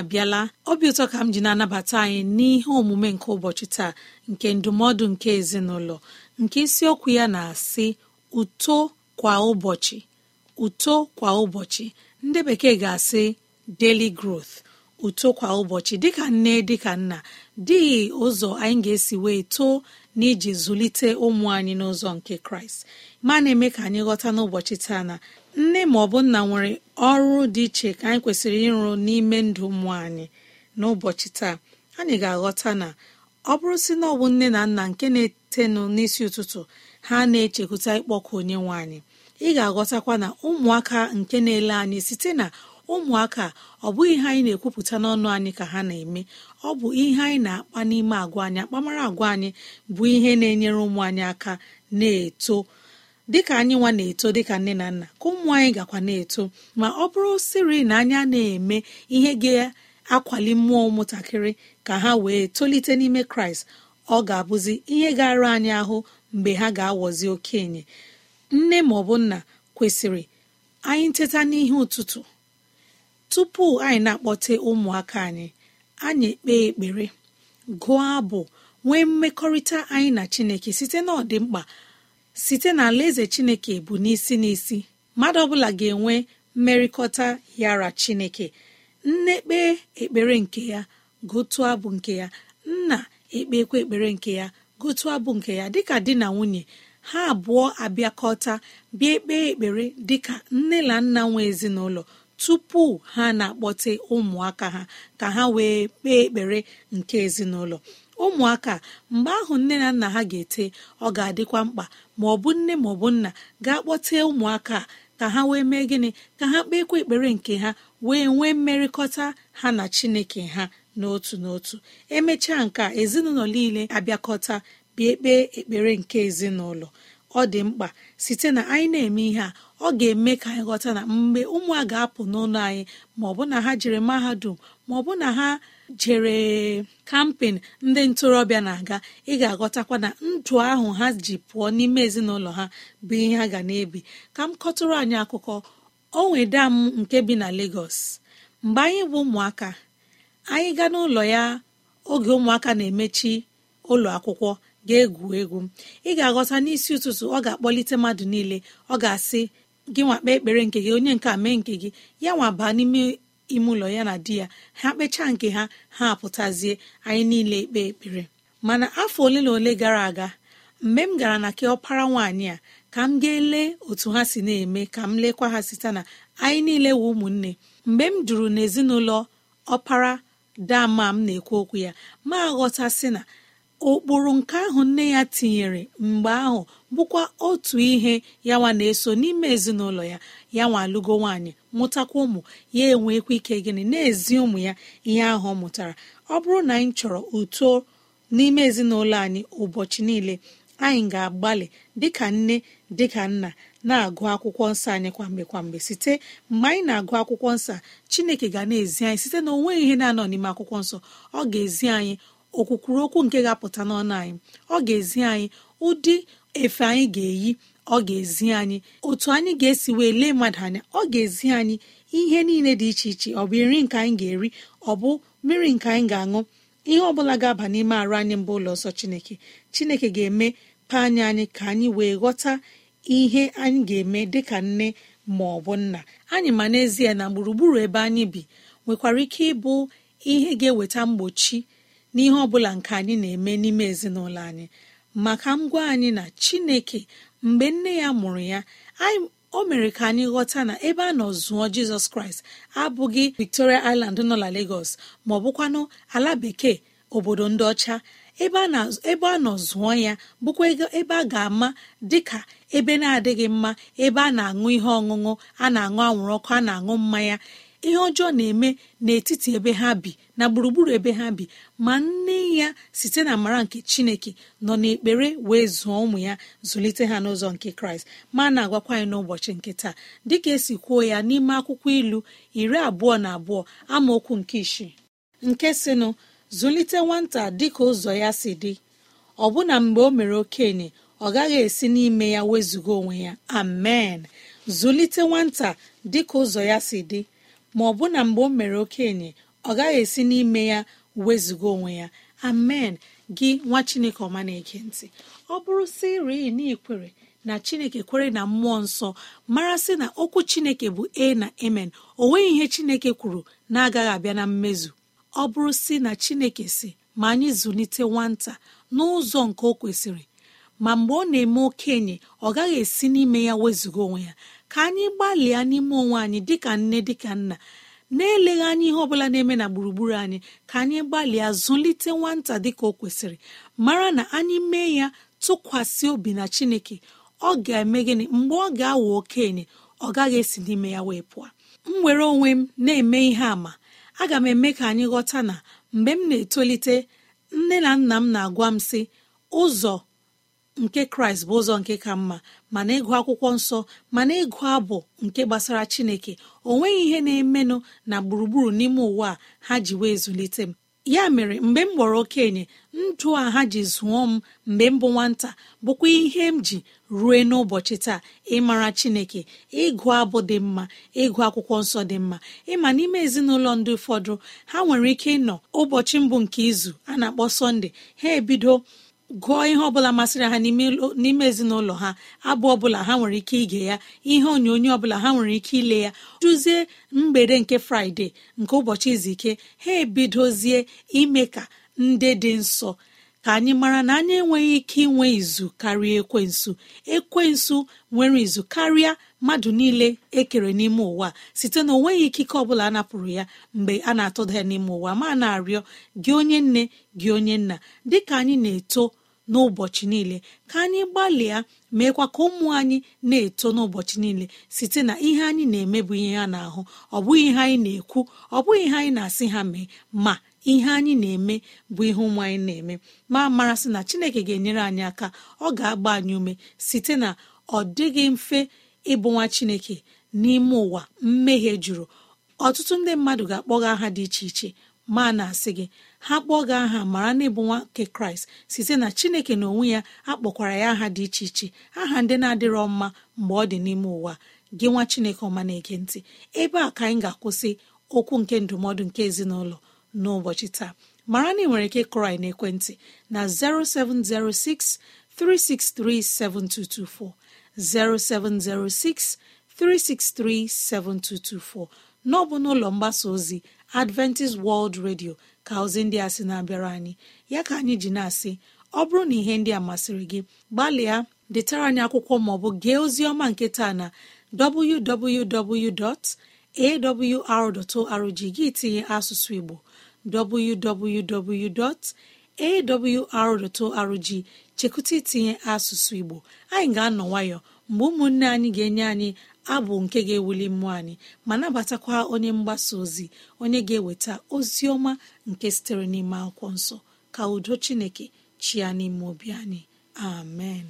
abịala obi ụtọ ka m ji na-anabata anyị n'ihe omume nke ụbọchị taa nke ndụmọdụ nke ezinụlọ nke isiokwu ya na-asị uto kwa ụbọchị uto kwa ụbọchị ndị bekee ga-asị daily growth uto kwa ụbọchị dịka nne dịka nna dịghị ụzọ anyị ga-esi wee too iji zụlite ụmụ anyị n'ụzọ nke kraịst ma na-eme ka anyị ghọta n'ụbọchị taa na nne ma ọ bụ nna nwere ọrụ dị iche ka anyị kwesịrị ịrụ n'ime ndụ ụmụ anyị n'ụbọchị taa anyị ga-aghọta na ọ bụrụ si na ọ bụ nne na nna nke na-etenụ n'isi ụtụtụ ha na-echekwuta ịkpọkụ onye nwe anyị ị ga-aghọtakwa na ụmụaka nke na-ele anyị site na ụmụaka ọ bụghị ihe anyị na-ekwupụta n'ọnụ anyị ka ha na-eme ọ bụ ihe anyị na-akpa n'ime agwa anyị akpamara agwa anyị bụ ihe na-enyere ụmụ anyị aka na-eto dịka anyị nwa na-eto dịka nne na nna ka ụmụ anyị gakwa na-eto ma ọ bụrụ siri na anyị na-eme ihe ga-akwali mmụọ ụmụntakịrị ka ha wee tolite n'ime kraịst ọ ga-abụzi ihe gara anyị ahụ mgbe ha ga-awọzi okenye nne ma ọ bụ nna kwesịrị anyị nteta n'ihe ụtụtụ tupu anyị na-akpọte ụmụaka anyị anyị ekpee ekpere gụọ abụ nwee mmekọrịta anyị na chineke site na ọdịmkpa site na alaeze chineke bụ n'isi n'isi mmadụ ọbụla ga-enwe mmerịkọta yara chineke nne ekpere nke ya gotu abụ nke ya nna ekpekwa ekpere nke ya gotu abụ nke ya dịka di na nwunye ha abụọ abịakọta bịa ekpe ekpere dịka nne na nna nwe ezinụlọ tupu ha na-akpọte ụmụaka ha ka ha wee kpee ekpere nke ezinụlọ ụmụaka mgbe ahụ nne na nna ha ga-ete ọ ga-adịkwa mkpa ma ọ bụ nne ma ọ bụ nna ga kpọtee ụmụaka ka ha wee mee gịnị ka ha kpeekwa ekpere nke ha wee nwee mmerịkọta ha na chineke ha n'otu n'otu emechaa nke a ezinụlọ niile abịakọta bịa kpee ekpere nke ezinụlọ ọ dị mkpa site na anyị na-eme ihe a ọ ga-eme ka anyị na mgbe ụmụ a ga-apụ n'ụlọ anyị ma na ha jere mahadum ma na ha jere kampen ndị ntorobịa na-aga ị ga-aghọtakwa na ndụ ahụ ha ji pụọ n'ime ezinụlọ ha bụ ihe ha ga na-ebi ka m kọtụrụ anyị akụkọ o nweda m nke bi na Lagos mgbe anyị bụ ụmụaka anyị gaa n'ụlọ ya oge ụmụaka na-emechi ụlọ akwụkwọ ga-egwu egwu ị ga-aghọta n'isi ụtụtụ ọ ga-akpọlite mmadụ niile ọ ga-asị gị nwakpa ekpere nke gị onye nke a mee nke gị ya nwa baa n'ime ime ụlọ ya na di ya ha kpechaa nke ha ha apụtazie anyị niile ikpe ekpere mana afọ ole na ole gara aga mgbe m gara na keọpara nwaanyị a ka m ga lee otu ha si na-eme ka m lekwa ha site na anyị niile wụ ụmụnne mgbe m duru n'ezinụlọ ọpara dama m na-ekwu okwu ya ma ghọta sị na ụkpụrụ nke ahụ nne ya tinyere mgbe ahụ bụkwa otu ihe yanwa na-eso n'ime ezinụlọ ya yanwa alụgo nwaanyị mụtakwa ụmụ ya enwekwa ike gịnị na-ezi ụmụ ya ihe ahụ ọ mụtara ọ bụrụ na anyị chọrọ uto n'ime ezinụlọ anyị ụbọchị niile anyị ga-agbalị dịka nne dịka nna na-agụ akwụkwọ nsọ anyị kwamgbe kwamgbe site mgbe anyị na-agụ akwụkwọ nsọ Chineke ga na-ezi anyị site na nweghị ihe na-anọ n'ime akwụkwọ nsọ ọ ga-ezi anyị okwukwuru okwu nke ga-apụta n'ọnụ anyị ọ ga-ezi anyị ụdị efe anyị ga-eyi ọ ga-ezi anyị otu anyị ga-esi wee lee mmadụ anya ọ ga-ezi anyị ihe niile dị iche iche ọ bụ nri nke anyị ga-eri ọ bụ mmiri nke anyị ga-aṅụ ihe ọ bụla ga-aba n'ime arụ anyị mbụ ụlọ ọsọ chineke chineke ga-eme paanya anyị ka anyị wee ghọta ihe anyị ga-eme dịka nne ma ọ bụ nna anyị ma n'ezie na gburugburu ebe anyị bi nwekwara ike ịbụ ihe ga-eweta mgbochi n'ihe ọ bụla nke anyị na-eme n'ime ezinụlọ anyị maka m gwa anyị na chineke mgbe nne ya mụrụ ya o mere ka anyị ghọta na ebe a nọ zụọ jizọs kraịst abụghị victoria island nọ na lagos ma ọ bụkwanụ ala bekee obodo ndị ọcha ebe a nọ zụọ ya bụkwa ebe a ga-ama dịka ebe na-adịghị mma ebe a na-aṅụ ihe ọṅụṅụ a na-aṅụ anwụrụ ọkụ a na-aṅụ mmanya ihe ọjọọ na-eme n'etiti ebe ha bi na gburugburu ebe ha bi ma nne ya site na amara nke chineke nọ n'ekpere wee zụọ ụmụ ya zụlite ha n'ụzọ nke kraịst ma na-agwakwa anyị n'ụbọchị nke taa dịka esi kwuo ya n'ime akwụkwọ ilu iri abụọ na abụọ amaokwu nke isii nke sinụ zụlite nwata dịka ụzọ ya si dị ọbụna mgbe o mere okenye ọ gaghị esi n'ime ya wezụga onwe ya amen zụlite nwata dịka ụzọ ya si dị ma ọ bụ na mgbe o mere okenye ọ gaghị esi n'ime ya wezuga onwe ya amen gị nwa chineke ọma na eke ntị ọ bụrụ si rii na ikwere na chineke kwere na mmụọ nsọ mara sị na okwu chineke bụ e na emen o ihe chineke kwuru na-agaghị abịa na mmezu ọ bụrụ si na chineke si ma anyị zụlite nwata n'ụzọ nke o kwesịrị ma mgbe ọ na-eme okenye ọ gaghị esi n'ime ya wezụga onwe ya ka anyị gbalịa n'ime onwe anyị dịka nne dịka nna na-eleghị anya ihe ọbụla na-eme na gburugburu anyị ka anyị gbalịa zụlite nwata dịka o kwesịrị mara na anyị mee ya tụkwasị obi na chineke ọ ga-eme gịnị mgbe ọ ga-awụ okenye ọ gaghị esi n'ime ya wee pụọ m were onwe m na-eme ihe àmà aga m eme ka anyị ghọta na mgbe m na-etolite nne na nna m na-agwa m sị ụzọ nke kraịst bụ ụzọ nke ka mma mana ịgụ akwụkwọ nsọ mana ịgụ abụ nke gbasara chineke o nweghị ihe na-emenụ na gburugburu n'ime ụwa a ha ji wee zụlite m ya mere mgbe m gbọrọ okenye ndụ a ha ji zụọ m mgbe m bụ nwata bụkwa ihe m ji rue n'ụbọchị taa ịmara chineke ịgụ abụ dị mma ịgụ akwụkwọ nsọ dị mma ịma n'ime ezinụlọ ndị ụfọdụ ha nwere ike ịnọ ụbọchị mbụ nke izu a na-akpọ sọnde ha ebido gụọ ihe ọbụla masịrị ha n'ime ezinụlọ ha abụ ọbụla ha nwere ike ige ya ihe onyonyo ọbụla ha nwere ike ile ya duzie mgbede nke fraịde nke ụbọchị izu ike ha ebidozie ime ka ndị dị nsọ ka anyị mara na anyị enweghị ike inwe izu karịa ekwensu ekwensu nwere izu karịa mmadụ niile ekere n'ime ụwa site na onweghị ikike ọbụla a napụrụ ya mgbe a na-atụda ya n'ime ụwa ma na-arịọ gị onye nne gị onye nna dịka anyị na-eto n'ụbọchị niile ka anyị gbalịa meekwa ka ụmụ anyị na-eto n'ụbọchị niile site na ihe anyị na-eme bụ ihe ha na-ahụ ọ bụghị ihe anyị na-ekwu ọ bụghị ihe anyị na-asị ha mee ma ihe anyị na-eme bụ ihe ụmụ anyị na-eme ma mara sị na Chineke ga-enyere anyị aka ọ ga-agba anyị ume site na ọ dịghị mfe ịbụ nwa Chineke n'ime ụwa mmehie juru ọtụtụ ndị mmadụ ga-akpọga aha dị iche iche ma na-asị gị ha kpọọ gị aha mara na ịbụ nwa nke kraịst site na chineke na onwe ya akpọkwara ya aha dị iche iche aha ndị na-adịrọ mma mgbe ọ dị n'ime ụwa gị nwa chineke ọma na-ege ntị ebe a ka anyị ga-akwụsị okwu nke ndụmọdụ nke ezinụlọ n'ụbọchị taa mara na ị nwere ike kụrụ na-ekwentị na 0706 363 0706 363 n'ọbụ n'ụlọ mgbasa ozi adventist world radio ka ozi ndị a sị na-abịara anyị ya ka anyị ji na-asị ọ bụrụ na ihe ndị a masịrị gị gbalịa detara anyị akwụkwọ maọbụ gee ozi ọma nke taa na www.awr.org gị tinye asụsụ igbo www.awr.org chekụta itinye asụsụ igbo anyị ga-anọ nwayọ mgbe ụmụnne anyị ga-enye anyị abụ nke ga-ewuli mmụọ anyị ma nabatakwa onye mgbasa ozi onye ga-eweta ozi ọma nke sitere n'ime akwụkwọ nsọ ka udo chineke chịa n'ime obi anyị amen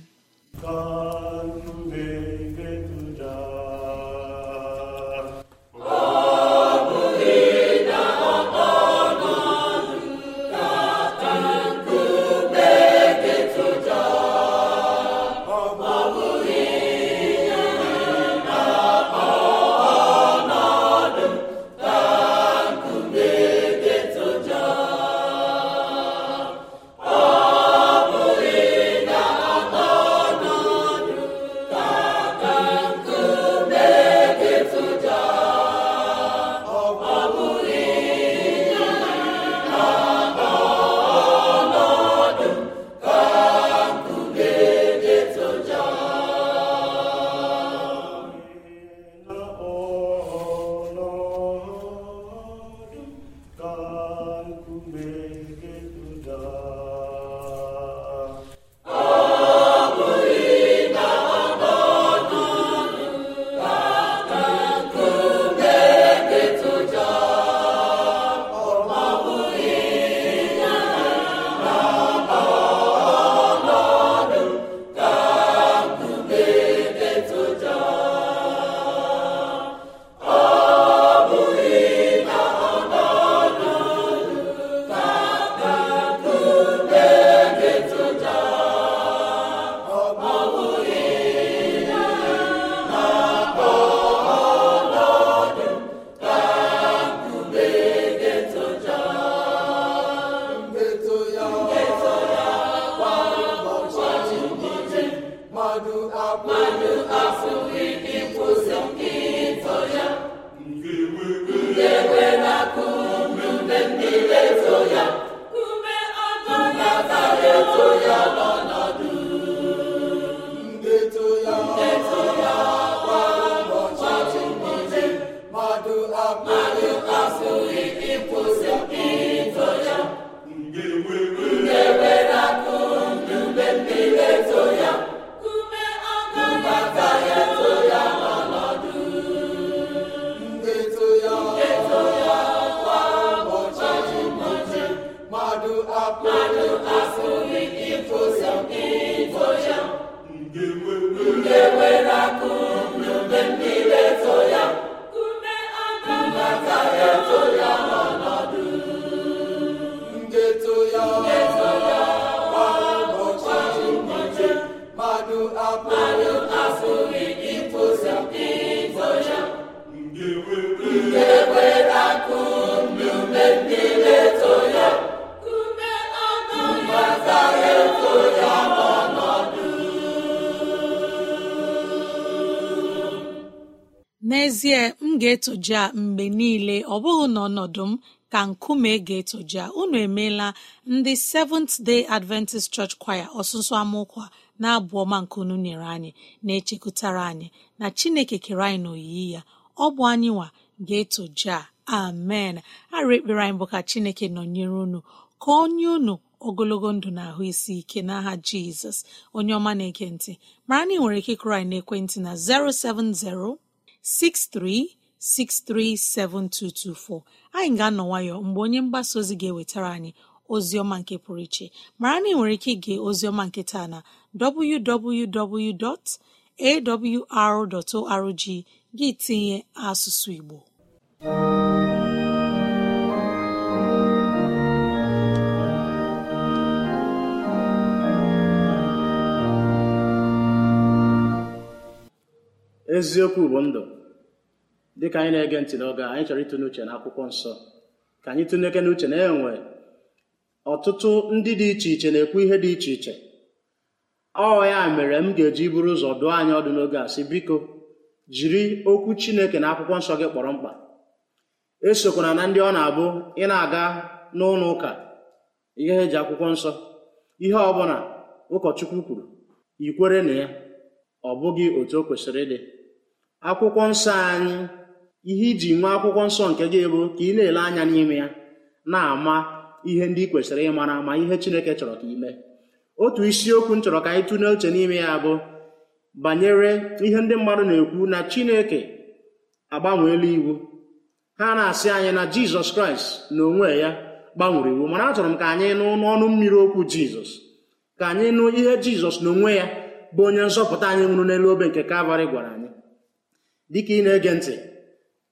n'ezie m ga-etoja mgbe niile ọ bụghị n'ọnọdụ m ka nkume ga-etoja unu emeela ndị Seventh Day Adventist Church Choir ọsụsụ amụkwa na-abụ ọma nke unu nyere anyị na-echekwutara anyị na Chineke kere anyị n'oyiyi ya ọ bụ anyị nwa ga-etoja amen arụ ekpere anyị bụ ka Chineke nọnyere unu ka onye unu ogologo ndụ na ahụ isi ike n'aha Jizọs onye ọma na-ege ntị mara na ị nwere ike ịkụrụ anyị n'ekwentị na 070 63637224 anyị ga-anọ nwayọ mgbe onye mgbasa ozi ga-ewetara anyị ozi ọma nke pụrụ iche mara na ị nwere ike ige ozi ọma nke taa na www.awr.org gị tinye asụsụ Igbo eziokwu bụ ndụ dịka anyị na-ege ntị n'oge anyị chọrọ ịtụnye uche na akwụkwọ nsọ ka anyị tụnyeke n'uche na enwe ọtụtụ ndị dị iche iche na-ekwu ihe dị iche iche ọ ya mere m ga-eji buru ụzọ dụọ anyị ọdụ n'oge a sị biko jiri okwu Chineke na akwụkwọ nsọ gị kpọrọ mkpa esokwana na ndị ọ na-abụ ị na-aga n'ụlọ ụka ihe eji akwụkwọ nsọ ihe ọbụla ụkọchukwu kwuru ikwere na ya ọ bụghị otu o kwesịrị ịdị akwụkwọ nsọ anyị ihe iji nwee akwụkwọ nsọ nke gị bụ ka ị na-ele anya n'ime ya na-ama ihe ndị ị kwesịrị ịmara ma ihe Chineke chọrọ ka ime otu isiokwu m chọrọ ka anyị tụlee uche n'ime ya bụ banyere ihe ndị mmadụ na-ekwu na Chineke agbanweela iwu ha na-asị anyị na Jizọs Kraịst na onwe ya gbanwere iwu mana achọrọ m ka anyị nụ n'ọnụ mmiri okwu Jizọs ka anyị nụ ihe Jizọs na onwe ya bụ onye nzọpụta anyị nwụrụ n'elu obe nke Kalvarị gwara anyị dịka ị na-ege ntị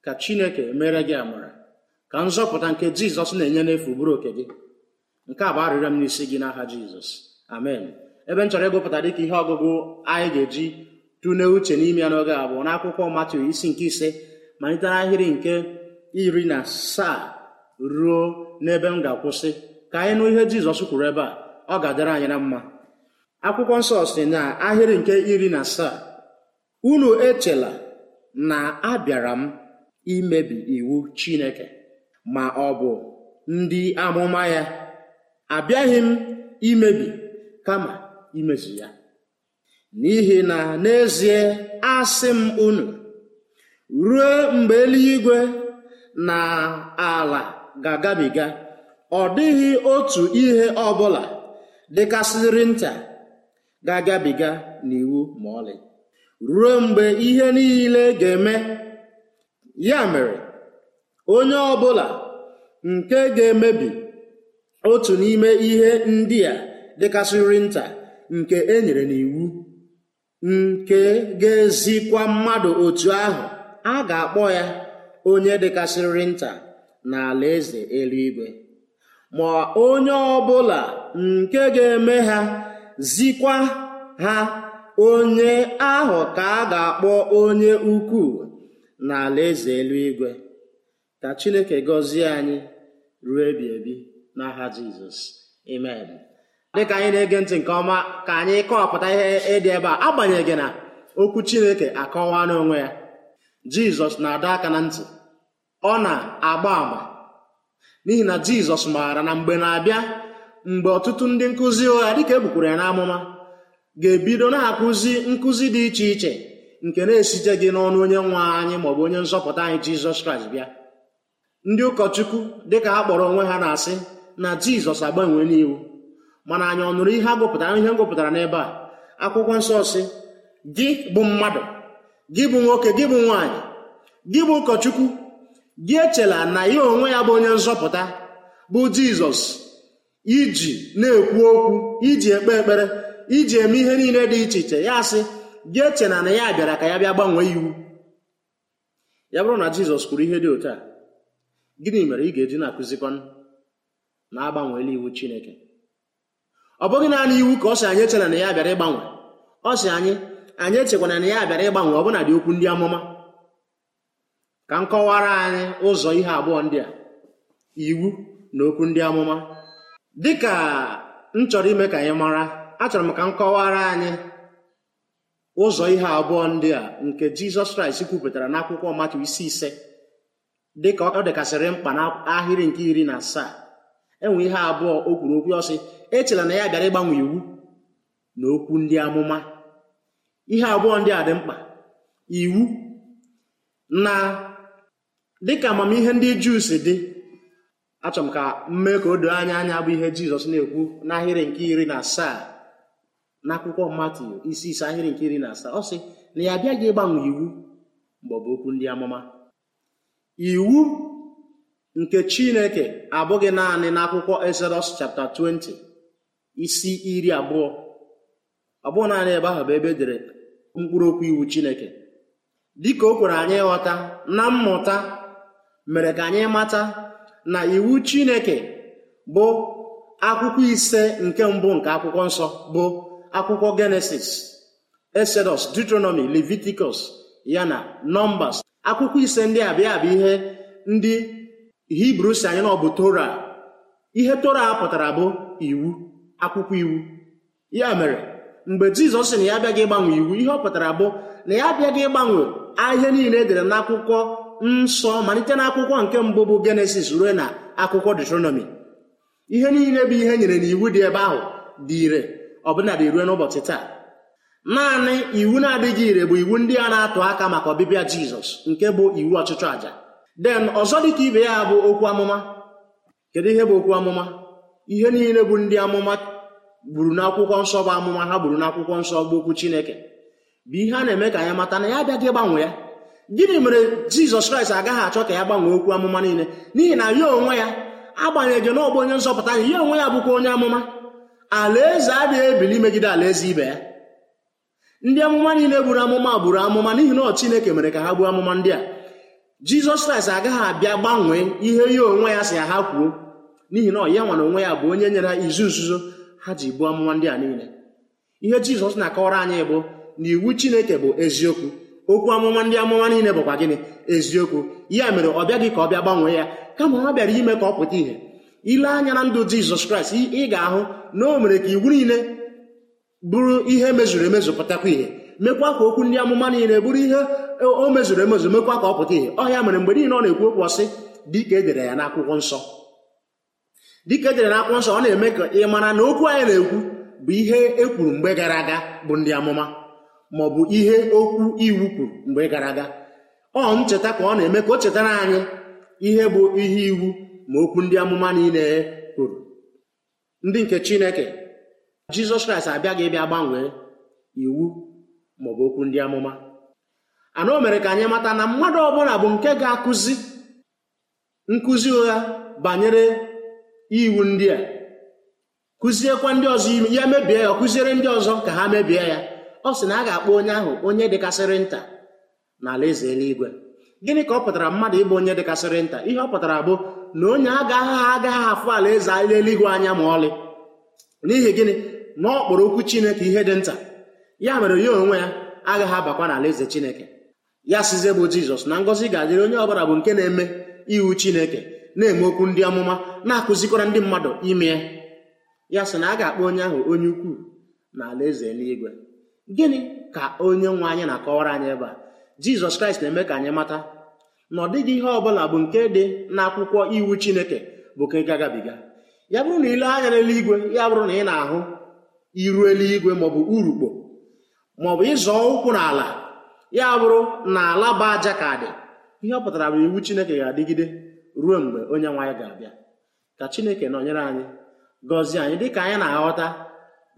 ka chineke mere gị amara ka nzọpụta nke jizọs na-enye n'efu bụrụ oke gị nke a bụ arịrịọ m n'isi gị n'aha jizọs amen ebe m chọrọ ịgụpụta dịka ihe ọgụgụ anyị ga-eji tụlee uche n'ime ya n'oge abụọ n'akwụkwọ Matiu isi nke ise malite n'ahịrị nke iri na asaa ruo n'ebe m ga-akwụsị ka anyị nụ ihe jizọs kwuru ebe a ọ ga-adịrị anyị na mma akwụkwọ nsọ si na ahịrị nke iri na asaa unu echela na abịara m imebi iwu Chineke ma ọ bụ ndị amụma ya abịaghị m imebi kama imezu ya n'ihi na n'ezie asị m unu ruo mgbe eluigwe na ala ga-agabiga ọ dịghị otu ihe ọbụla dịkasịrị nta ga-agabiga n'iwu ma ọlị ruo mgbe ihe niile ga-eme ya mere onye ọbụla nke ga-emebi otu n'ime ihe ndị a dịkasịrị nta nke e nyere n'iwu nke ga-ezikwa mmadụ otu ahụ a ga-akpọ ya onye dịkasịrị nta n'ala eze eluigwe ma onye ọbụla nke ga-eme ha zikwa ha onye ahụ ka a ga-akpọ onye ukwu n'ala eze eluigwe ka chineke gọzie anyị ruo ebi ebi n'aha jizọs dị dịka anyị na-ege ntị nke ọma ka anyị kọwapụta ihe ịdị ebe a agbanyeghị na okwu chineke akọwa n'onwe ya jizọs na-adọ aka na ntị ọ na-agba àmà n'ihi na jizọs maara na mgbe na-abịa mgbe ọtụtụ ndị nkụzi ụgha dịka ebukwuru ya n'amụma ga-ebido na-akụzi nkụzi dị iche iche nke na-esite gị n'ọnụ onye nwe anyị maọbụ onye nzọpụta anyị jizọs kraịst bịa ndị ụkọchukwu dịka ha kpọrọ onwe ha na-asị na jizọs agbanwe n'iwu mana anyị ọ nụrụ ihe agụpụtara ihe ngụpụtara n'ebe a akwụkwọ nsọ si gị bụ mmadụ gị bụ nwoke gị bụ nwaanyị gị bụ ụkọchukwu gị echela na ya onwe ya bụ onye nzọpụta bụ jizọs iji na-ekwu okwu iji ekpe ekpere iji eme ihe niile dị iche iche ya sị gị eche na ya bịara ka ya bịa gbanwee iwu ya bụrụ na jizọs kwuru ihe dị otu a gịnị mere ị ga-eji na-akụzikwanụ na-agbanweela iwu chineke ọ bụghị naanị iwu ka ọ sị anyị echena na ya bịara ịgbanwe ọ sị anyị anyị echekwana na ya bịara ịgbanwe ọbụna dị okwu ndị amụma ka m kọwara anyị ụzọ ihe abụọ ndị a iwu na okwu ndị amụma dịka m chọrọ ime ka anyị mara achọrọ m ka m kọwara anyị ụzọ ihe abụọ ndị a nke jizọs kraịst kwupụtara n'akwụkwọ matu isi ise dịka ọ dịkasịrị mkpa n'ahịrị nke iri na asaa enwe ihe abụọ o kwuru okwu ọsị echela na ya bịara ịgbanwe iwu na okwu ndị amụma ihe abụọ ndị a dị mkpa iwu na dịka amamihe ndị juu si dị achọrọ m ka mmee ka o doo anya anya bụ ihe jizọs na-ekwu n'ahịrị nke iri na asaa n'akwụkwọ Matiu isi ise ahịrị nke iri na asaa ọ sị na ya abịaghị ịgbanwe iwu maọbụ okwu ndị amụma iwu nke Chineke abụghị naanị n'akwụkwọ Exodus chapter 20 isi iri abụọ ọ naanị ebe ahụ bụ ebe edere mkpụrụ okwu iwu Chineke dịka o kwere anyị ịghọta na mmụta mere ka anyị mata na iwu Chineke bụ akwụkwọ ise nke mbụ nke akwụkwọ nsọ bụ akwụkwọ genesis exodus deuteronomy leviticus ya na nọmbas akwụkwọ ise ndị a bịa bụ ihe ndị hibru si anyị na ọ bụ tora ihe tora pụtara bụ iwu akwụkwọ iwu ya mere mgbe jizọs sị na ya abịaghị ịgbanwe iwu ihe ọ pụtara bụ na ya abịaghị ịgbanwe ahịa niile edere akwụkwọ nsọ malite akwụkwọ nke mbụ bụ genesis ruo na akwụkwọ deuteronomy ihe niile bụ ihe e nyere n'iwu dị ebe ahụ dị ire ọbụnadị ruo n'ụbọchị taa naanị iwu na-adịghị ire bụ iwu ndị a na-atụ aka maka ọbịbịa jizọs nke bụ iwu ọchịchọ àjà den ọzọ dịka ibe ya bụ okwu amụma kedu ihe bụ okwu amụma ihe niile bụ ndị amụma gburu n'akwụkwọ nsọ bụ amụma ha gburu n'akwụkwọ nsọ bụ okwu chineke bụ ihe a na-eme ka ya mata na ya abịaghị gbanwee ya gịnị mere jizọs kraịst agaghị achọ ka ya gbanwee okwu amụma niile n'ihi na ya onwe ya agbanyeghị n'ọbụ onye nzọpụta ya onwe ya bụkwa onye amụma alaeze adịghị ebili imegide alaeze ibe ya ndị amụma niile buru amụma buru amụma n'ihi na ọ Chineke mere ka ha gbuo amụma ndị a Jizọs Kraịst agaghị abịa gbanwee ihe ya onwe ya si ya ha kwuo n'ihi na ọ ya nwere onwe ya bụ onye nyere ha izu nzuzo ha ji gbuo amụma ndị a niile ihe Jizọs na-akọwara anyị bụ na iwu Chineke bụ eziokwu okwu amụma ndị amụma niile bụkwa gịnị eziokwu ya mere ọ bịaghị ka ọ bịa gbanwee ya kama ha bịara ime ka ọ pụta ìhè ile anya na ndụ jizọs kraịst ị ga-ahụ na o mere ka iwu niile bụrụ ihe mezuru emezu pụtakwa ihe mekwa ka okwu ndị amụma niile bụrụ ihe e, o mezuru emezu mekwa ka ọ pụta ihe ọhịa mere mgbe niile ọ na-ekwu okwu ọsị dịka edere ya n'akwụkwọ nsọ dịka edere n'akwụkwọ nsọ ọ na-eme ka ị mara na okwu anyị na-ekwu bụ ihe e kwuru mgbe gara aga bụ ndị amụma ma ọ bụ ihe okwu iwu kwuru mgbe gara aga ọ ncheta ka ọ na-eme ka o chetara anyị ihe bụ ihe iwu ma okwu ndị amụma niile kwuru ndị nke chineke jizọs kraịst abịaghị ịbịa gbanwee iwu maọbụ okwu ndị amụma o mere ka anyị mata na mmadụ ọbụla bụ nke ga-akụzi nkụzi ụgha banyere iwu ndị a kụziekwa ndị ọzọ ime ya mebie ya ọ kụziere ndị ọzọ ka ha mebie ya ọ sị na a ga-akpọ onye ahụ onye dịkasịrị nta eze eluigwe gịnị ka ọ pụtara mmadụ ịbụ onye dịkasịrị nta ihe ọ pụtara bụ na onye agaghị agaghị afụ ala eze ala eluigwe anya ma ọlị n'ihi gịnị na ọ kpọrọ okwu chineke ihe dị nta ya mere ya onwe ya agaghị abakwa n'ala eze chineke ya size bụ jizọs na ngọzi ga-adịrị onye ọbụla bụ nke na-eme iwu chineke na-eme okwu ndị ọmụma na-akụzikwara ndị mmadụ ime ya ya sị na a ga-akpọ onye ahụ onye ukwuu na ala eze eluigwe gịnị ka onye nwe anyị na-akọwara anyị ebe a jizọs kraịst na-eme ka anyị mata na ọ dịghị ihe ọ bụla bụ nke dị n'akwụkwọ iwu chineke bụ ka ị gagabiga ya bụrụ na ile anya n'eluigwe ya bụrụ na ị na-ahụ iru eluigwe maọbụ urukpo maọbụ ịzọ ụkwụ n'ala ya bụrụ na ala bụ aja ka dị ihe ọ pụtara bụ iwu chineke ga-adịgide ruo mgbe onye nwe ga-abịa ka chineke nọnyere anyị gọzie anyị dịka anyị na-aghọta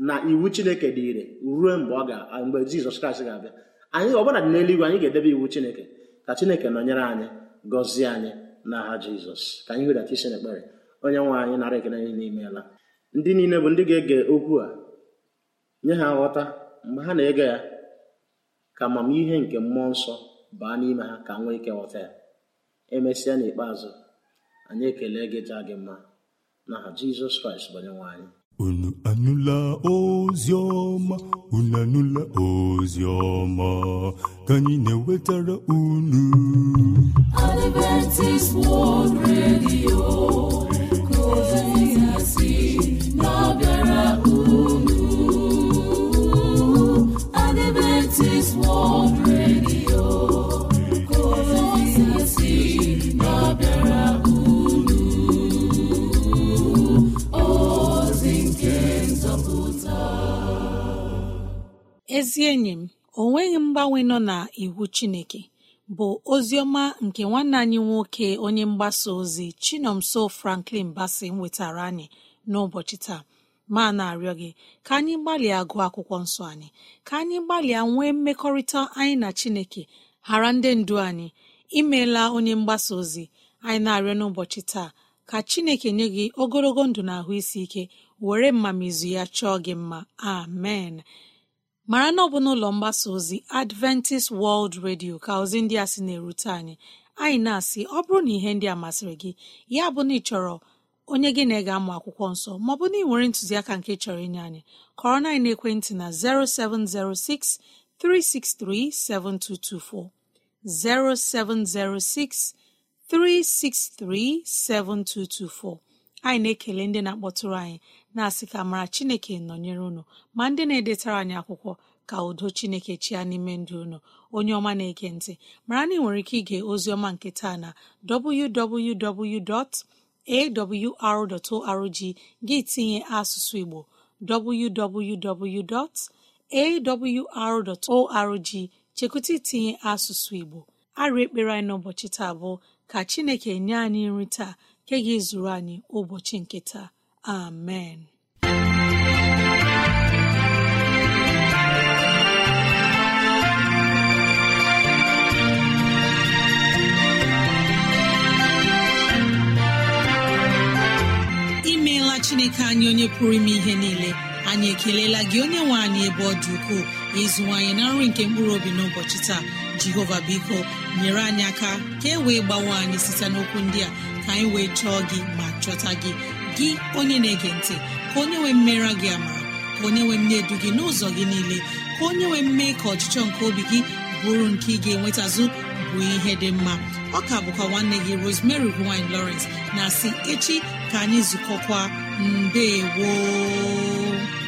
na iwu chineke dị ire ruo mgbe ọ ga mgbe jizọs kraịst ga-abịa anyị ọbụla dị n'eluigwe anyị ga-edebe iwu chineke ka chineke nọnyere anyị gọzie anyị aha jizọs ka anyị wedata isi n'ekpere onye nwe anyị nara ekele niile ndị niile bụ ndị ga-ege okwu a nye ha nghọta mgbe ha na-ege ya ka amamihe nke mmụọ nsọ baa n'ime ha ka nwee ike ghọta ya emesịa n'ikpeazụ anyị ekele gị jaa gị mma n'aha jizọs kraịst bụ onye nwe anyị unu anụla ozi ọma unu anụla ozi ọma ka anyị na-ewetara unu unu Adventist World Radio ezi enyi m o nweghị mgbanwe nọ na iwu Chineke bụ ozi ọma nke nwanne anyị nwoke onye mgbasa ozi Chinomso Franklin Bassey nwetara anyị n'ụbọchị taa ma na-arịọ gị ka anyị gbalịa gụọ akwụkwọ nsọ anyị ka anyị gbalịa nwee mmekọrịta anyị na Chineke ghara ndị ndu anyị imeela onye mgbasa ozi anyị na-arịọ n'ụbọchị taa ka Chineke nye gị ogologo ndụ na ahụ isi ike were mmamizu ya chọọ gị mma amen mara na ọ bụ n'ụlọ mgbasa ozi adventist world radio ka ozi ndị a sị na-erute anyị anyị na-asị ọ bụrụ na ihe ndị a masịrị gị ya bụ na ị chọrọ onye gị na ege amụ akwụkwọ nsọ maọbụ na ị nwere ntụziaka nke chọrọ inye anyị kọrọ na ekwentị na 0706 363 7224, 0706 363 7224. anyị na-ekele ndị na-akpọtụrụ anyị na-asị ka mara chineke nọnyere unu ma ndị na-edetara anyị akwụkwọ ka udo chineke chịa n'ime ndụ unu onye ọma na-ege ntị mara na ị nwere ike ige oziọma nke taa na www.awr.org gị tinye asụsụ igbo www.awr.org chekwụta itinye asụsụ igbo arụ ekpere anyị n'ụbọchị taa bụ ka chineke nye anyị nri taa nke ga-ezuru anyị ụbọchị nke taa amen imeela chineke anyị onye pụrụ ime ihe niile anyị ekelela gị onye nwe anyị ebe ọ dị ukwuu ukoo ịzụwanyị na nri nke mkpụrụ obi n'ụbọchị taa jehova biko nyere anyị aka ka e wee gbawe anyị site n'okwu ndị a ka anyị wee chọọ gị ma chọta gị gị onye na-ege ntị ka onye nwee mmera gị ama ka onye nwee mne edu gị n'ụzọ gị niile ka onye nwee mme ka ọchịchọ nke obi gị bụrụ nke ị ga-enwetazụ bụ ihe dị mma ọka bụkwa nwanne gị Rosemary gine Lawrence na si echi ka anyị zukọkwa mbe woo